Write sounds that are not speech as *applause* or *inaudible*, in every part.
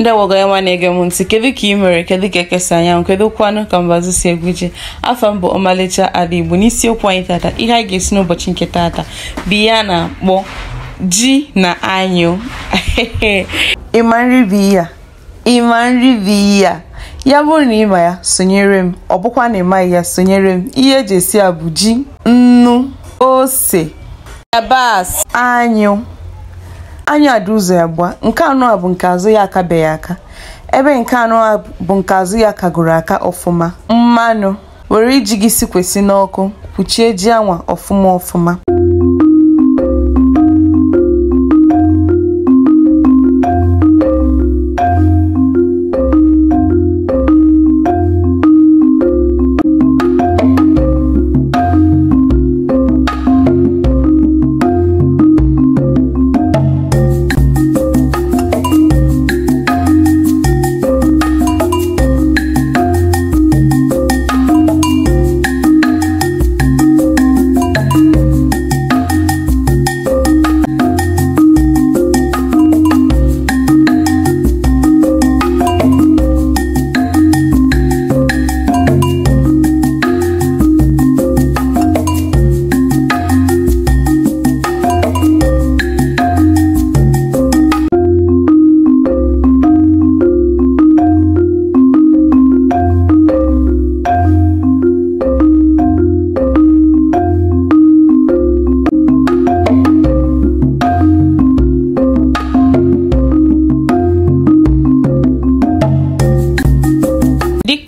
ndị ya nwa na-ege m ntị kedu ka ị mere kedu ka ekesa anyanwụ kedu kwanụ ka mbazụ si egwuje afọ m bụ ọmalịcha ala igbo n'isiokwu anyị tata ihe anyị ga-esi n'ụbọchị nke tata bụ ihe a na-akpọ ji na anyụ *laughs* ịma nri bụ ihe a ịma nri bụ ihe a ya bụrụ na ịma ya sonyere m ọ bụkwa na ịmaghị ya sonyere m ihe eji esi a bụ ji nnu ose yabasị anyụ anya dị ụzọ abụọ nke anọ a bụ nke azụ ya akabeghị aka ebe nke anọ a bụ nke azụ ya kagoro aka ọfụma mmanụ were iji gị si kwesị n'ọkụ kpuchie ji anwa ọfụma ọfụma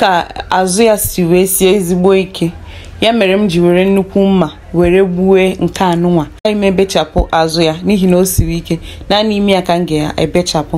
ka azụ ya si wee sie ezigbo ike ya mere m ji were nnukwu mma were gbuwe nke anụnwa agaghị m ebechapụ azụ ya n'ihi na o siri ike naanị ime ya ka m ga-ebechapụ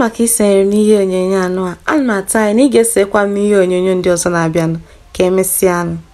maka isonyere n'ihe onyonyo anọ a, ana m atụ anya na ị ga-esekwa m ihe onyonyo ndị ọzọ na-abịanụ ka anụ.